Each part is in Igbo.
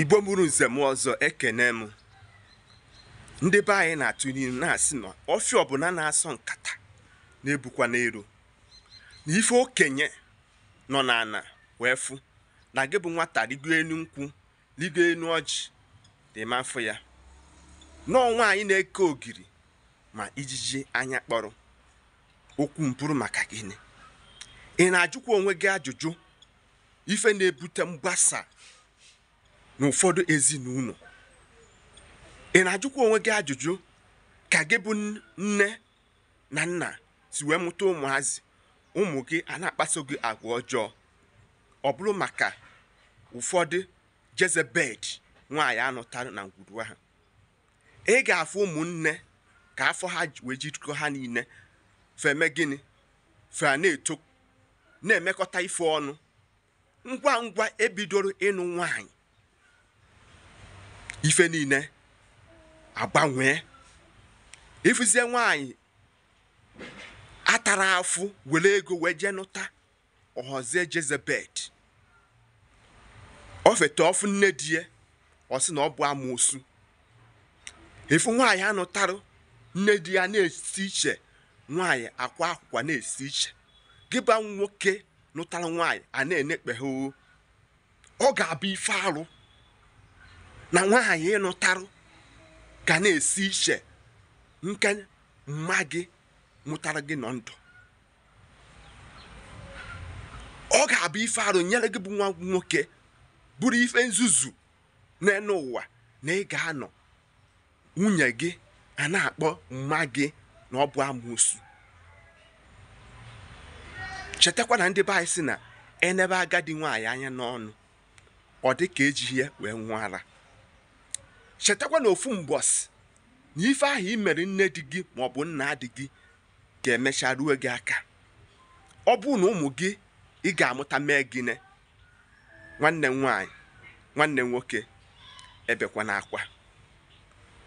igbo mụrụ nzem ọzọ ekene m ndị be anyị na-atụ n'ilu na-asị na ọfịa ọbụla na-asọ nkata na-ebukwa n'elu na ife okenye nọ n'ana wee fụ na gị bụ nwata rigo elu nkwụ rigo elu ọjị ma afọ ya n'ọnwa anyị na-eke ogiri ma ijiji anya kpọrọ okwu mpụrụ maka gịnị ị na-ajụkwa onwe gị ajụjụ ife na-ebute mgbasa n'ụfọdụ ezinụlọ ị na-ajụkwa onwe gị ajụjụ ka gị bụ nne na nna si wee mụta ụmụazị ụmụ gị a na-akpaso gị agwa ọjọọ ọ bụrụ maka ụfọdụ jezebed nwaanyị anọtara na ngwuru ha ị ga-afụ ụmụnne ka afọ ha wee jikọ ha niile feme gịnị fe na-eto na-emekọta ife ọnụ ngwa ngwa ebidoro ịnụ nwaanyị ife niile agbanwee ịfụzie nwanyị atara afụ were ego wee jee nụta ọhọzie jezebet ofete ọfụ nne di ya ọ sị na ọ bụ amoosu ịfụ nwaanyị anụtarụ nne di ya na-esi iche nwaanyị akwa akwụkwọ na-esi iche gịba nwoke nụtara nwaanyị a na-enekpe o ọ ga-abụ ife arụ na nwaanyị ịnụtarụ ga na-esi iche nke mma gị mụtara gị nọ ndụ ọ ga-abụ ife arụ nyere gị bụ nwa nwoke bụrụ ife nzuzu n'elu ụwa na ị ga-anọ nwunye gị a na-akpọ mma gị na ọ bụ amoosu chetakwa na ndị be anyị si na enebe agadi nwaanyị anya n'ọnụ ọ dị ka ejighị wee nwụọ ara chetakwa na ofu mbọsị na ife ahụ i mere nne di gị maọbụ nna di gị ga-emecha ruo gị aka ọ bụrụ na ụmụ gị ị ga-amụta mee gịnị nwanne nwaanyị nwanne nwoke ebekwa akwa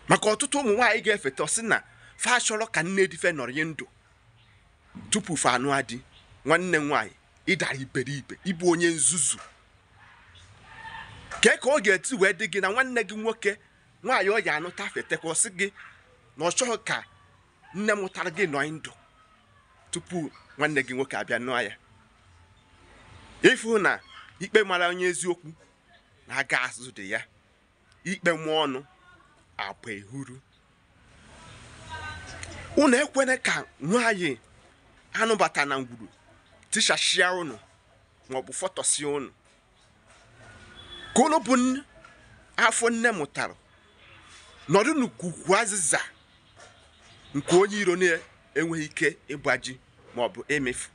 maka ọtụtụ ụmụ nwaanyị ga-efeta sị na fa achọrọ ka nne di fe nọrị ndụ tupu fa anụ adị nwanne nwaanyị ịdara iberibe ịbụ onye nzuzu kee ka ọ ga-eti wee dị gị na nwanne gị nwoke nwaanyị ọ ya anụta afetekwa ọsị gị na ọ chọghị ka nne mụtara gị nọ ndụ tupu nwanne gị nwoke abịa nụọ ya ịfụ na ikpe mara onye eziokwu na-aga azụ dị ya ikpe mụọ ọnụ agba ehuru unu ekwene ka nwaanyị anụbata na ngwuru tichashia unu maọbụ fọtọsie unu ka unu bụ afọ nne mụtara nọdụ n'ukuku azịza nke onye iro na-enweghị ike ịgbaji ma ọ bụ emefu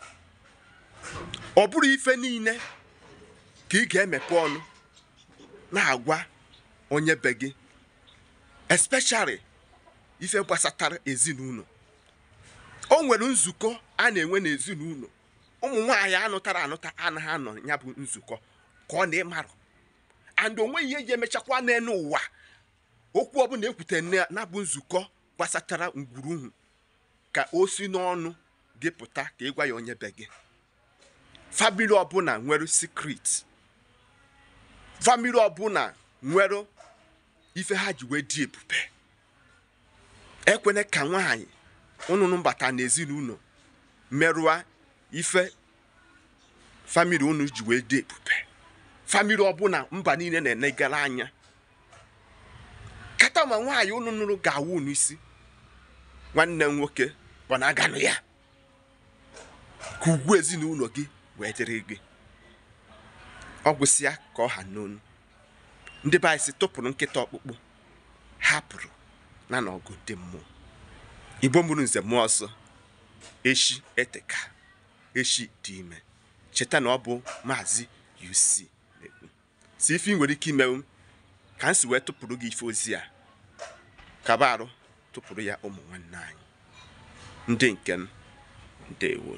ọ bụrụ ife niile ka ị ga-emepe ọnụ na-agwa onye be gị especially ife gbasatara ezinụlọ o nwere nzukọ a na-enwe n'ezinụlọ ụmụ nwaanyị anụtara anụta anaghị anọ ya bụ nzukọ ka ọ na-ịmarụ and onweghị ihe ji emechakwa n'elu ụwa okwu ọbụla ekwute na-abụ nzukọ gbasachara ngwuruhu ka o si n'ọnụ gị pụta ka gwa ya onye be gị famili ọbụla nwere sikret famili ọbụla nwere ife ha ji wee dị ebube ekwene ka nwaanyị ụnụnụ mbata n'ezinụlọ merụa ife famili unu ji wee dị ebube famili ọbụla mba niile na-enegara anya kama nwaanyị unu nụrụ ga-awụ unu isi nwanne m nwoke bụ na aganụ ya ka ugwu ezinụlọ gị wee dịrị gị ọ gwụsịa ka ọ ha n'onu ndị be anyị si tụpụrụ nkịta ọkpụkpụ hapụrụ na n'ọgụ dị mmụọ igbo mụrụ nze mmụọ ọsọ echi ka, echi dị ime cheta na ọ bụ maazị UC si ife ị nwere ike imewu ka m si wee tụpụrụ gị ife ozi a kaba arụ tụpụrụ ya ụmụ nwanne anyị ndị nke m ndewo